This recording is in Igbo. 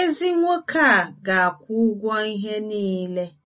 Ezi nwoke a ga-akwụ ụgwọ ihe niile.